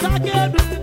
Zagueiro.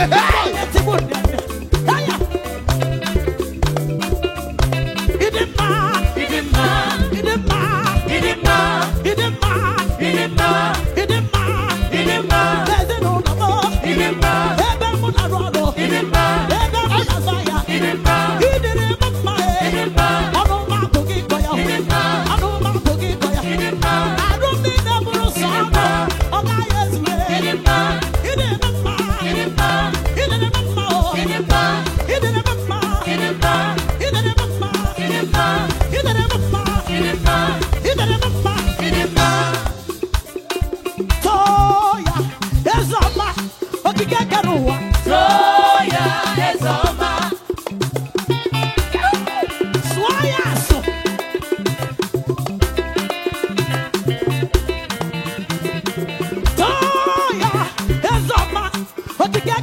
Ah!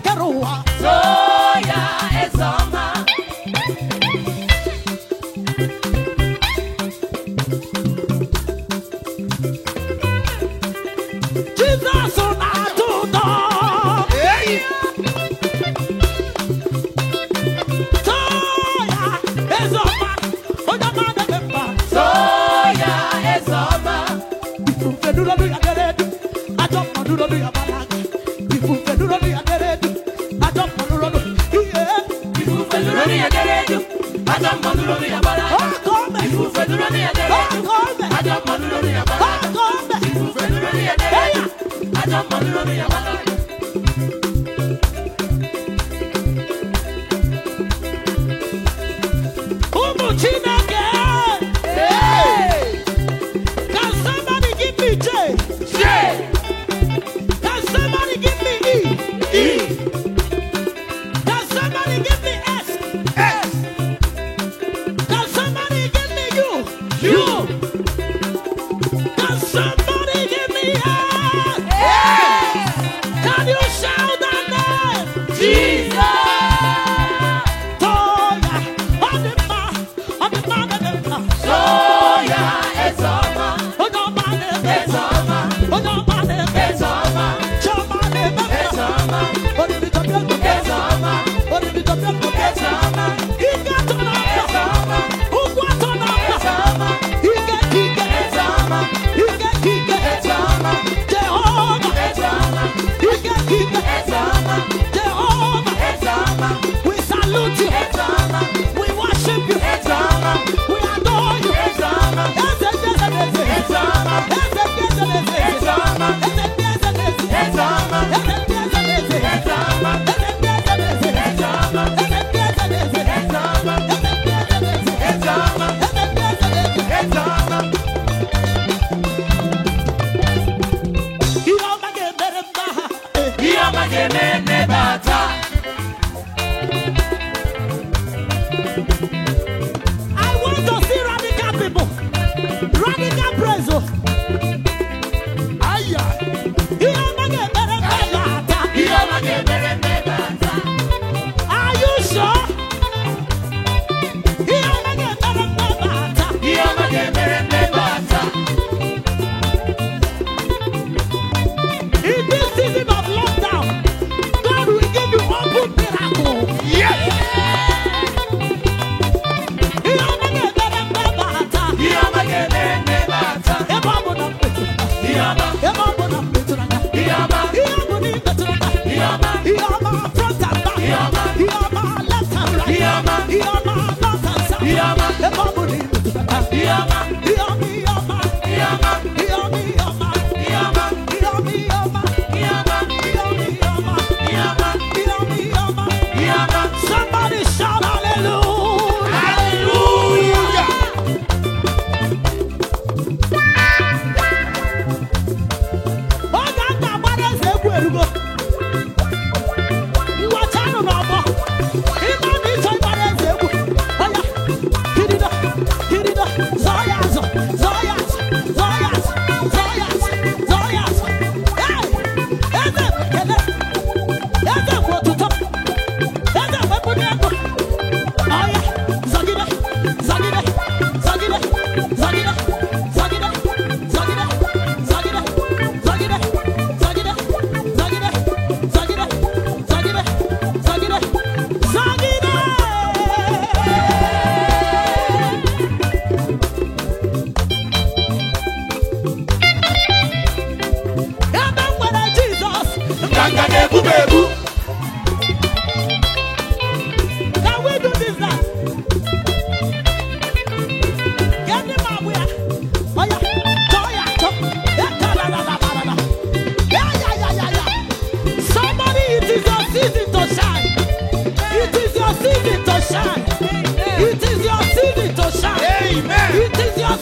Kakarua. Soya is on lórí ẹ̀dẹ́rẹ́ jù Yama, Yama, Yama, Yama,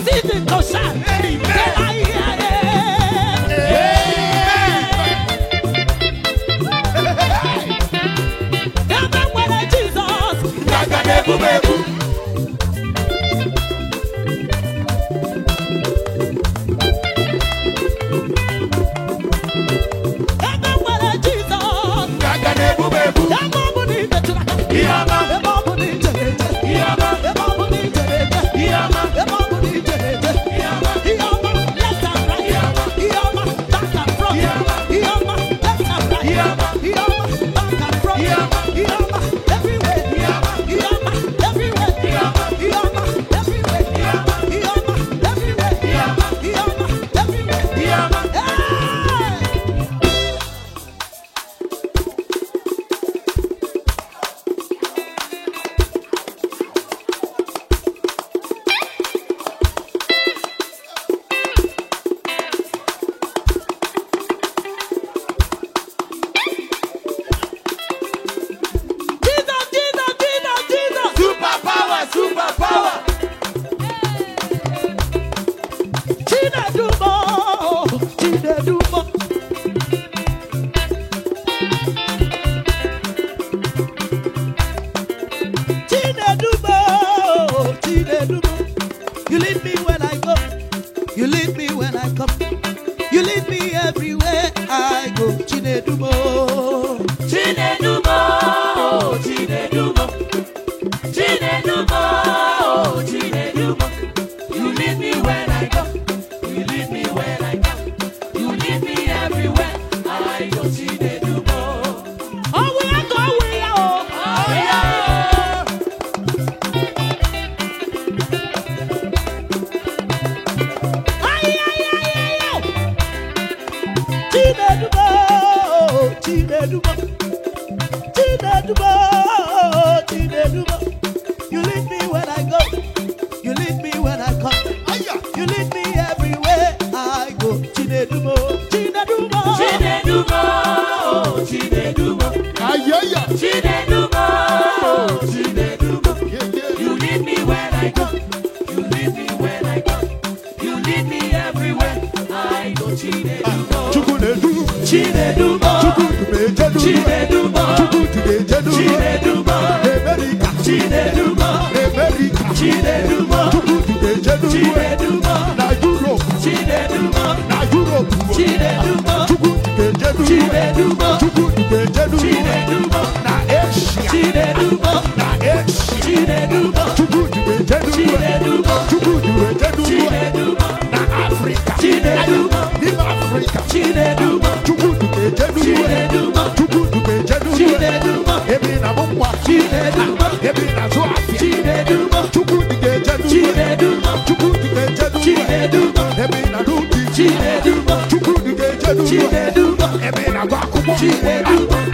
deciden gozar. Chinedumo. Ayaya. Chinedumo. Chinedumo. You lead me when I go. You me everywhere. I go Chinedumo. Chinedumo. Na Europe. Chinedubo Chukwu Dube Jedubo Chinedubo na Asia Chinedubo na Asia Chinedubo Chukwu Dube na Africa Chinedubo Nim Africa Chinedubo Chukwu Dube Jedubo Chinedubo Chukwu Dube Jedubo Chinedubo Ebi na Mumwa Ebi Ebi agụ akwụkwọ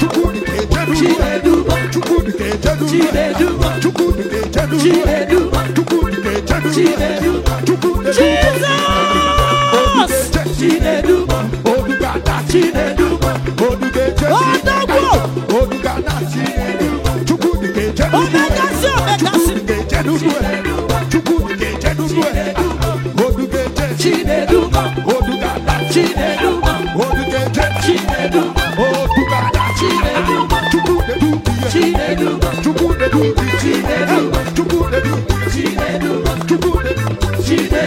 chukwudị ga-ejedu chukwudị ga-ejedu chukwudị ga-ejedu chukwudị ga-ejedu chukwudị ga-ejedu obi ga-ada chinedu obi ga-ejedu obi ga-ada chinedu chukwudị ga-ejedu chukwudị ejedu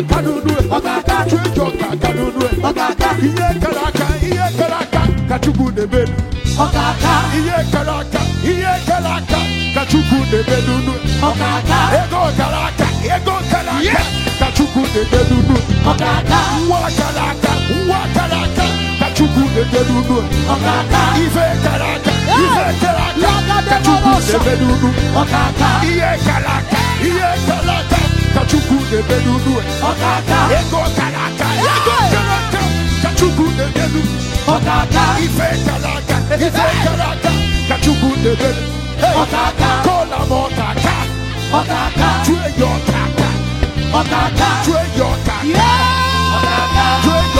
aka n'unu ọkaka ka aka ọkaka ihe kala aka ihe aka kachukwu chukwu ọkaka ihe aka ihe kara aka ka nebe na ọkaka ego kara aka ego kala aka kachukwu chukwu na ọkaka nwa kara aka nwa kara aka ka ọkaka ife aka ife aka ọkaka ihe kara aka ihe kara aka Kachukwu Chukwu na-eme n'ulu ego kara aka ego kara aka ka Chukwu na-eme n'ulu ife kara aka ife kara aka ka Chukwu na-eme n'ulu kọla m ọkaka chue ya ọkaka chue ya ọkaka chue ya